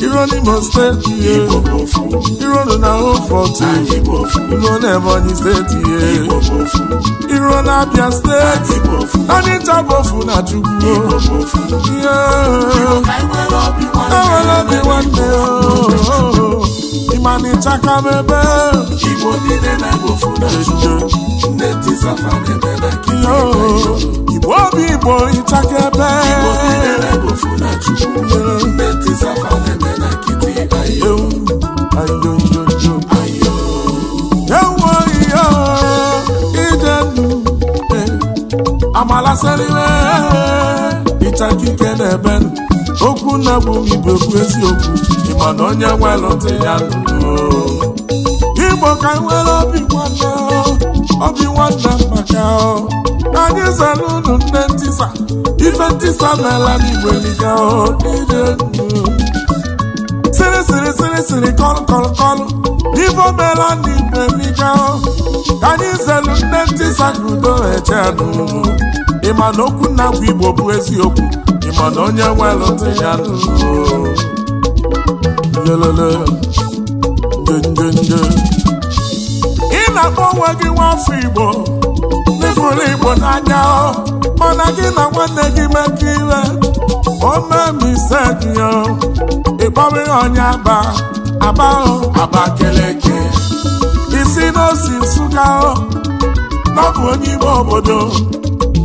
iro n'Imo steeti ihe iro na Hofort iro na Ebonyi steeti ihe iro na Abia steeti anyị tabofu na Chukwu enwere obi nwanne ịma oh. na ịchaka mebe igbo obi igbo na bụ igbo bụ eziokwu ịma na onye nwelụdị ya igbo ka nwere obi nwanne obi nwanne maka anyị zara unu nne ntisa ife ntisa n'ala n'igbo eliga sịrị sịrị sịrị sịrị kọlụ kọlụ kọlụ ife omela n'igbo eliga ka anyị zelu nne ntisa ka udo eche ịma na okwu na bụ igbo bụ eziokwu mana onye welụte ya ị na-akpọ onwe gị nwafọ Igbo n'ịbụrụ Igbo n'anya mana gị na nwanne gị mekọ ire omemisedio ịkpọrọ ihe onye aba aba Abakeleke isi n'osi Nsụka ọ bụ onye ime obodo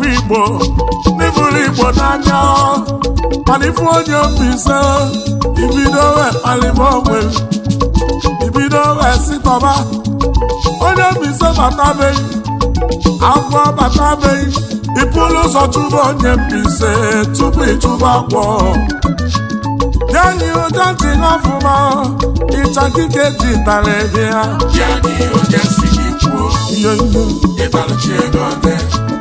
n'afọ Igbo n'ifuru Igbo n'anya onye mbise ibido alịba ogbe ibido onye mbise batabeghị agwọ batabeghị ịpụrụ ụzọ chụba onye mbise tupu ịchụba agwọ yanyi ụja ji n'ọfụma ịchakike ji tara ya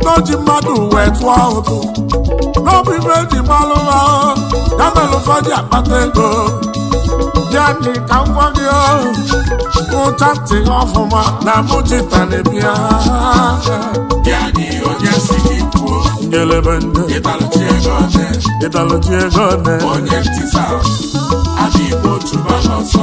n'oji mmadụ wee tụọ ụtụ n'obi ibe eji malụ ya mere akpata ego ya dị ka ngwa gị ụcha ntị ọfụma na mụchita na-ebia ngelebe ndị ịdalụchi ego nne onye ntịsa adị igbo chụba n'ọsọ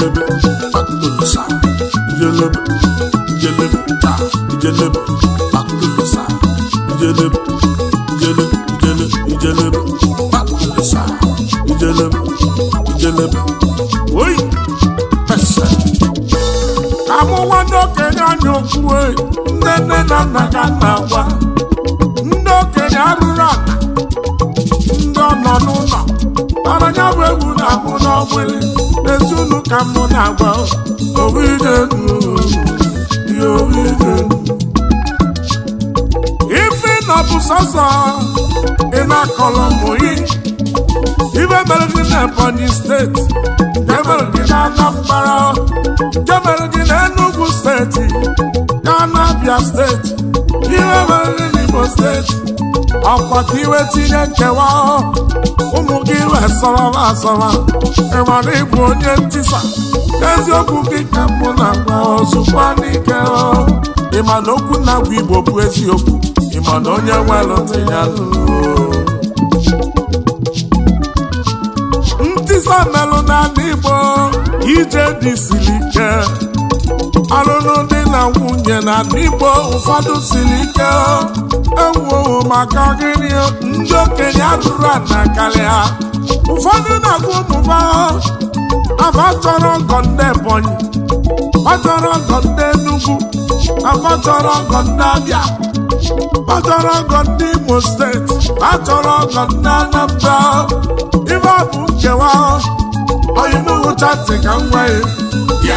jelebe akụsa jelebe jelebe ta jelebe akụsa jelebe amụwa n'okenye anya okwue nne nne na nna ga na-agwa ka mụ na-agba ife na bụ sọsọ ị na-akọrọ ụmụ gị ife mere gị na Ebonyi steeti jemere gị na Anambra jemere gị na Enugu steeti na Abia steeti Iwe mere gị na Igbo steeti akpata iwe tinye nkewa ụmụ gị resọrọla asọrọ ịmara ịbụ onye ntisa eziokwu gị ka mbụ na agwa n'ike ịma na okwu na-agwa igbo bụ eziokwu ịma na onye nwere ntị ntisa melụ n'ala igbo ije dị siri ike alụlụ dị na nwunye na igbo ụfọdụ siri ike ewuo maka gịnị ndị okenye atụrụ na karịa ụfọdụ na-agụ ụmụba afa chọrọ ọgọ ndị Ebonyi ọ chọrọ ọgọ ndị Enugu afa chọrọ ọgọ ndị Abịa ọ chọrọ ọgọ ndị Imo steeti a chọrọ ọgọ ndị Anambra ibe bụ nkewa onye n'ụcha ntị ka m gwa ya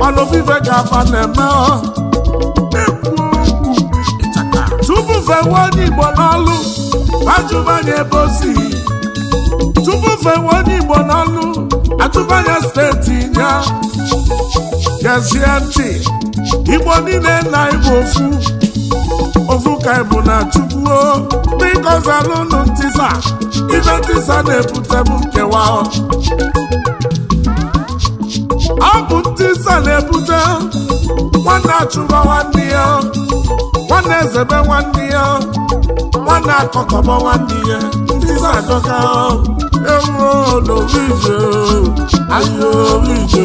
mana ofufe ga-aba na-eme tupu fewe onye Igbo n'ọlụ ajụbanye ebe o si tupu onye n'ọlụ steeti ya gezie ntị Igbo niile na egbu ofu ofu ka ịbụ na chukwuo bikozi alụnụ ntisa ibe ntisa na-ebutebụ nkewa na-ebute nwanne achụba nwanne ya nwanne ezebe nwanne ya nwanne akọkọba nwanne ya ndị na-adọka ewuolorije ahịa orije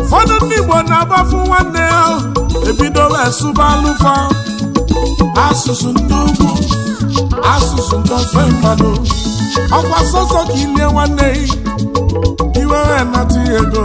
ụfọdụ ndị Igbo na-agbafu nwanne ya ebido wee sụba asụsụ ndị ugwu asụsụ ndị ofe mmadụ ọkwa sọsọ ka ilie nwanne iwere nata ego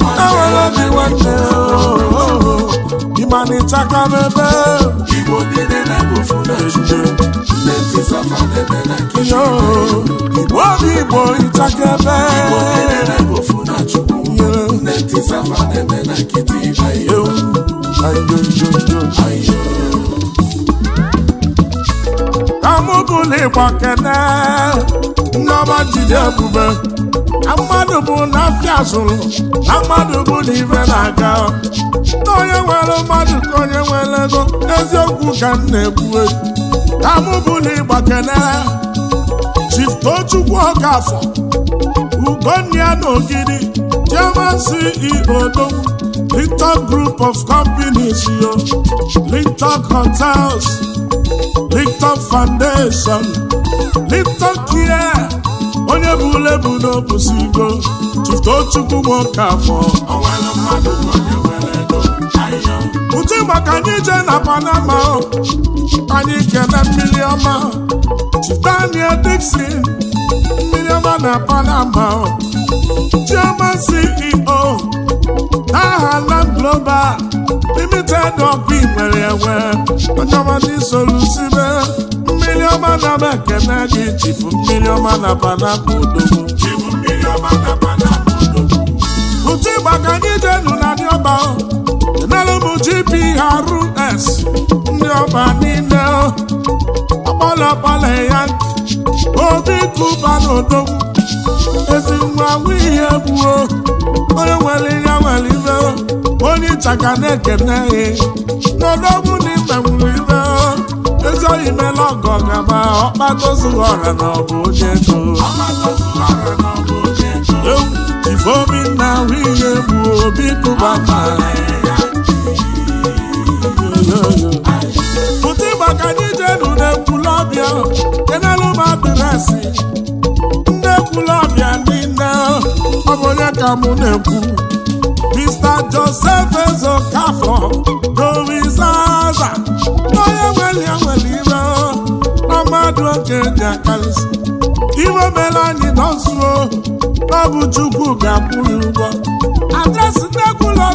obi nwanne ịma oh, na ịchaka n'ebe igbo obi igbo ịchaka ebe amụbụla ịgba kene jide ebube na mmadụ bụ na afịa zụrụ na mmadụ bụ na na-aga na onye nwere mmadụ ka onye nwere ego eziokwu ka m na-ekwu na mụ bụ na ịgba kenere Chiftochukwu Okafọ Ugonia na Ogidi German CEO Linton Group of Companies yo Linton Hotels Linton Foundation Linton Care onye bụ ule ulebu n'obusi iko tụtụo chukwu m oke afọ ụtụ maka anyị je na panama anyị kene mmiri ọma Daniel Dixon mmiri ọma na panama chioma CEO aha Land Global Limited ọbụ nwere enwe onye ọma ndị solusibe mmiri ọma na m ekene gị chibu mmiri ọma na panapụ odogwu ụtụ ịgba ka anyị jenu na ndị ọba enere m GPRS ndị ọba niile akpọlọkpọlọ ya obi kụba na odogwu ezi nwa ihe gbuo onye nwere ihe nwere ibe onye ịchaka na-ekene ya n'odogwu na ibe nwere ibe ọzọ imela ọgọ gaba ọkpata ozughị ọra na ọbụ onye ego ewu na ahụ ihe bụ obi kụba ma pụta ịgbaka n'ije nu na-ekwulọbịa kenelụma adresị ndị ekwulọbịa niile ọ bụ onye ka mụ na-ekwu Mr. Joseph Ezokafor Doris Aza onye nwere ya nwere change accounts iwe mere anyị nọzuo na ọ bụ Chukwu ga-akwụ ya ụgwọ adresị nnekwula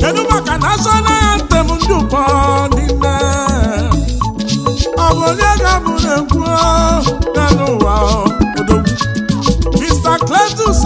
kedu maka national anthem ndị ụkọ na. ọ bụ onye ga-abụrụ egwu n'ụwa ụwa Mr. Cletus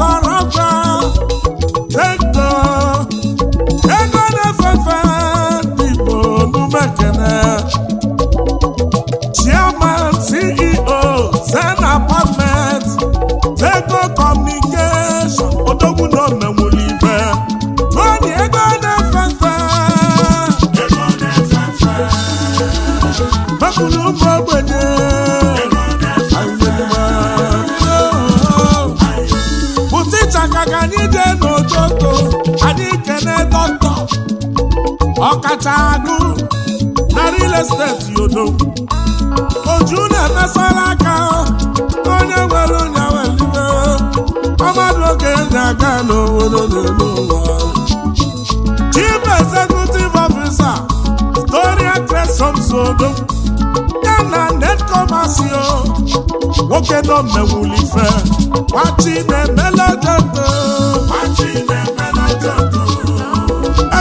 ọkacha agụ na real estate yodo oju na-emesara aka onye nwere onye welibe ọmadụ oge na-aga n'obodo n'elu ụwa chief executive officer Gloria Cresson Sodo ya na netkomasio nwoke nọ mmewulife nwachi na-emelejedo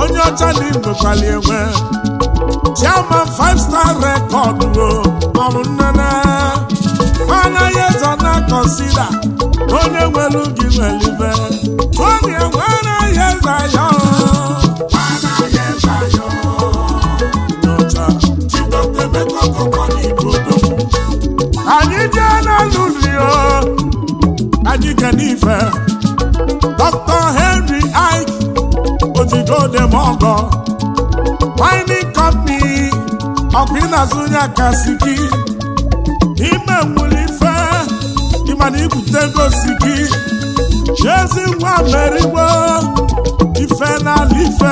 onye ọcha dị nnukwu igbekwala enwe chiama five star rekọd ọrụ nnene anaghị eze na kọnsida onye nwelu gị nwelibe onye nwere ihe zayo anyị jee na rio anyị ga n'ife throw them all gone. Mining company, Okpina Zunya Kasiki, Ime Mulife, Imani Kutego Siki, Jezi Wameriwe, Ife na Life,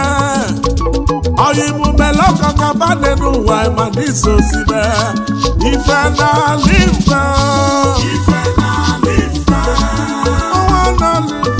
Oyimu Meloko Kabane Nuwa Imani Sosibe, Ife na Life, Ife na Life, Owa na Life.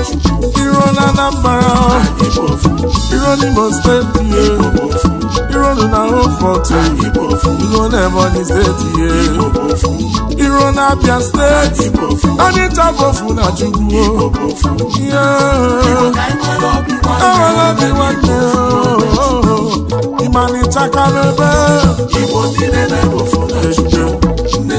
iro na Anambra iro n'Imo steeti ye iro na Hofort iro na Ebonyi steeti ye na Abia steeti Onitsha bụ ofu na Chukwu enwere obi nwanne ịmalịchakala ebe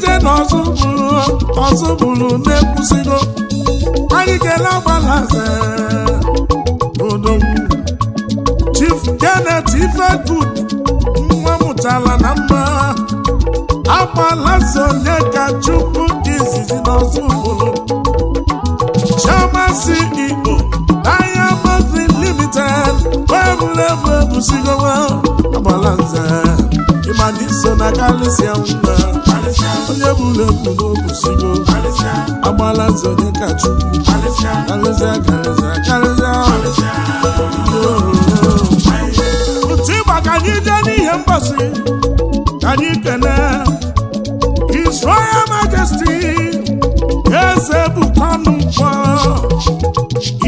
ije na ọzọ bụrụ ọzọ bụrụ na-ekwusigo anyị kele agbalaze odogwu Chief Janet Ifegood nwa mụtara na mma agbalaze onye ka chukwu dị izizi na ọzọ bụrụ Chairman CEO Diamond Limited wee bụrụ ebu na alụsịa mma onye bụla ebubo kwụsịgo agbala nzọ dịka chukwu karịsịa karịsịa otu ịgba ka anyị jee n'ihe mgbasị ka anyị kene His eze bụkwanụ mkpọ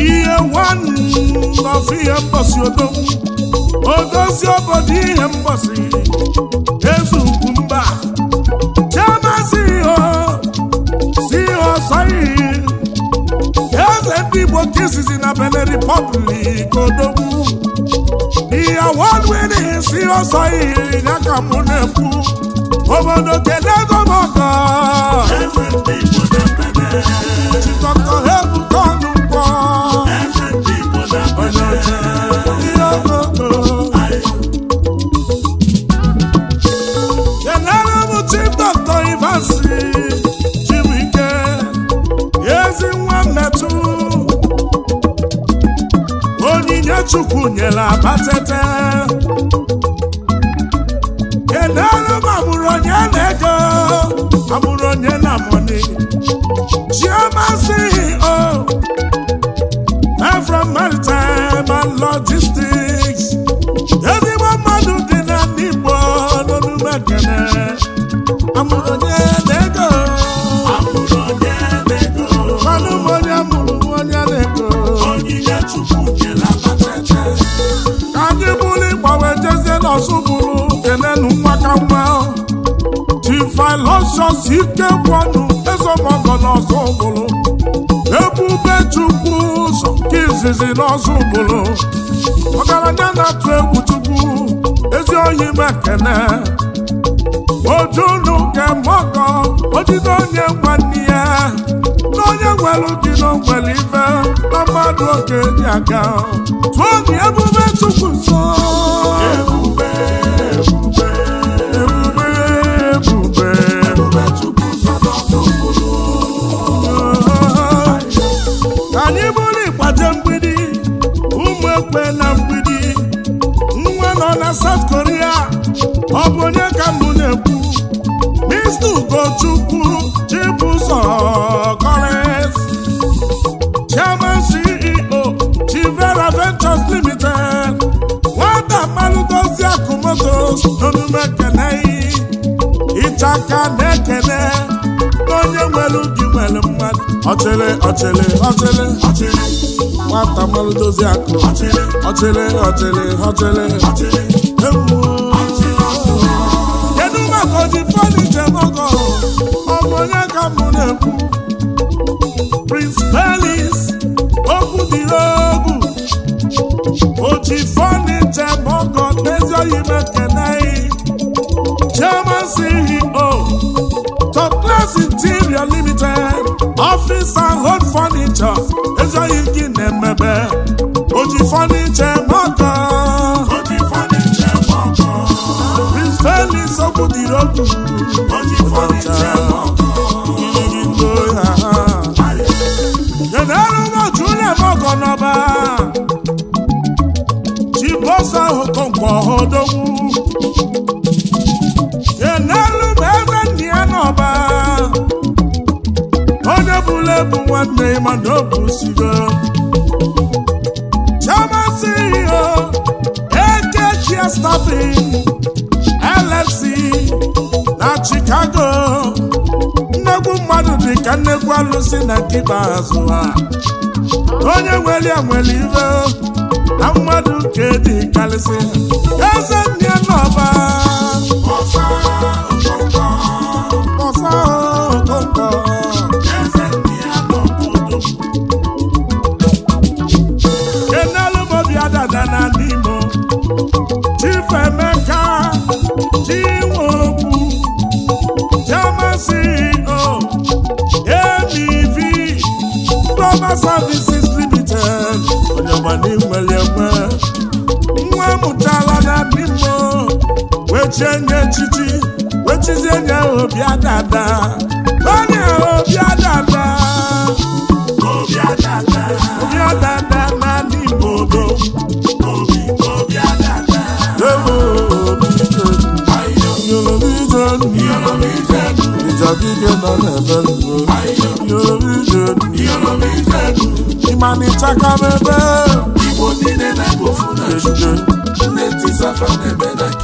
ihe nwanọfụ ihe mgbasị odozi obodo ihe mgbasị nke izizi na Benin Republic odogwu ihe wọdwedịghị si ọsọ ihe ya ka mụ na-ekwu obodo kedu ego m ọkọ ozubulu kelenu nwakanwa tifilosios ike kwọnụ ezemọgọ n'ozubulu ebube chukwu ụzọ nke izizi n'ozubulu ọgaranya na-atụ egwu chukwu ezi onye mekene ojunu kemọgọ ojide onye nwanne na nwere dị ife na mmadụ dị aga okpe na mgbidi nwa nọ na South Korea ọ bụ onye ka mbụ na-ekwu Mr. Ugochukwu Chibuzọ Collins Chairman CEO Chivera Ventures Limited nwata mmanụ dozie akụmoto n'omume ekene ichaka na-ekene mmadụ mmadụ ọchịrị ọchịrị ọchịrị ọchịrị nwata mmanụ dozi akụ ọchịrị ọchịrị ọchịrị ọchịrị ọchịrị ewu kedu maka oji ije nọgọ ọbụ onye ka m na-ekwu Prince Pelis okwu dị egwu oji ije nọgọ n'ezi oyi mekene chairman CEO Glass Interior Limited Office and Home Furniture ezoghị gị na-emebe oji fọnicha maka Prince Felix Okwudịrị Okwu bad name and no busibe Chama CEO AK Share Staffing lfc na Chicago nnegwu mmadụ dị ka nnegwu alụsị na nke ikpeazụ ha onye nwere ya nwere ibe na mmadụ nke dị karịsị eze n'ọba echiche nye echichi wechizie nye obia dada onye obia dada obia dada obia dada n'ala igbo ịmanịcha ka m ebe igbo niile na-ebofu na nne tisafa na-ebe na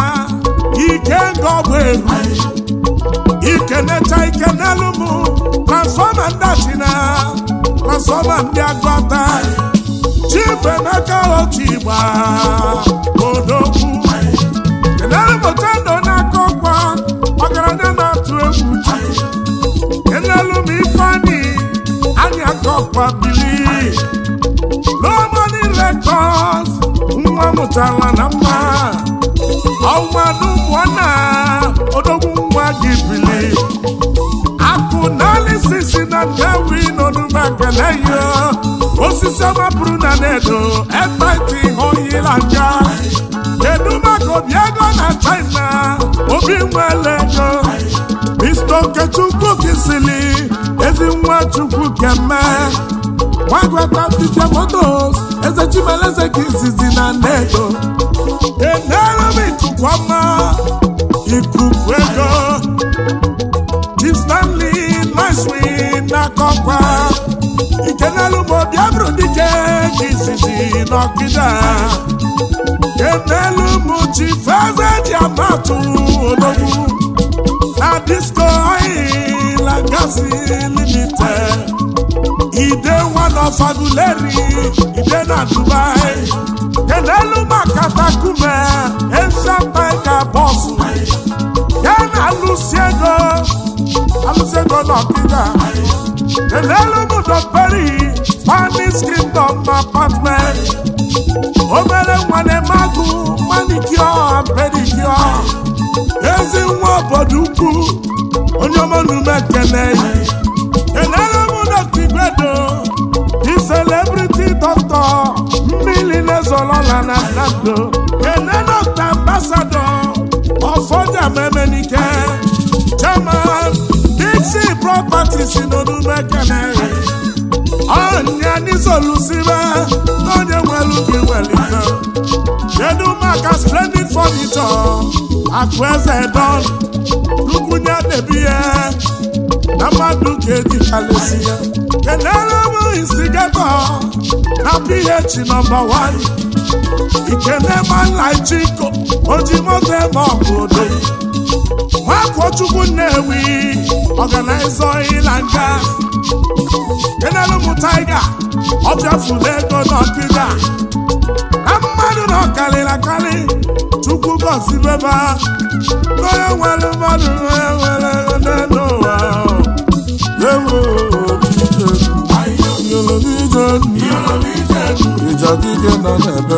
ike nga ọbụ egwu ikenecha ike n'elu m transfọma ndị achina transfọma ndị agụata chibemeka otu igba odogwu kenere mụta ndo n'aka ọkwa ọgaranya na-atụ egwu kenelu m ifeanyị anyị aka ọkwa bili lomoni kọs, nwa mụtara na mma ọnwa osisi na ndewi nọ n'ume ekpele osisi ọma bụrụ na na-edo ekpeti ihe oyila nga kedu maka obi ego na china obi nwere ego mr okechukwu kisili ezi nwa chukwu keme gwagwata tite motos eze chimeleze ka izizi na edo enere m ọma na mmeri n'akọkwa ikenelụmụ biabụrụ dike nke izizi n'ọkịda kenelụmụ chi feze ji amatụ odogwu na disko oyi lagasi limited ide one of aguleri ide na dubai kenelụmụ akatakume esa paika bọsụ kenelụsi ego Jose Golokida, Elelu Mudoperi, Spanish Kingdom Apartment, Obere Nwanemagu, Manicure and Pedicure, Ezi nwa obodo ukwu, onye ọmọnụ mekene, Elelu Mudokigwedo, Di celebrity doctor, mmiri na-ezolola na Nando, Enenokta ambassador, ọfọja property si n'omume kene ọnya n'isolusibe n'onye nwere ubi welite kedu maka splendid furniture akụ eze don rukwunye debi ya na mmadụ ga-ejichalesi ya kelere m instigato na ph nọmba 1 ikene manlaichiko oji moto ebe bụ odoyi nwakochukwu Nnewi ọganaiza ịla nga enelụmụ taiga ọbịafụla ego n'ọkịga na mmadụ na ọkarịrị akarị chukwu gọzibeba e nwere mmadụ nwere n'ụwa ịjadike nọ n'ebe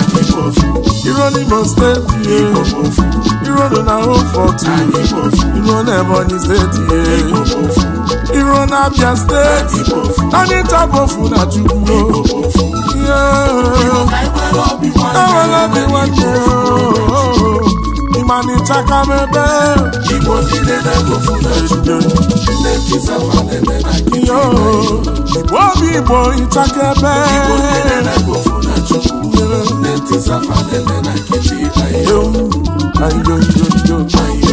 iru n'Imo steeti ye iru na Home Fort iru na Ebonyi steeti ye iru na Abia steeti anyị tabofu na Chukwu ewere obi nwanne ịmanị chakama ebe ihe obi Igbo ịchaka ebe Nne ntị zafa na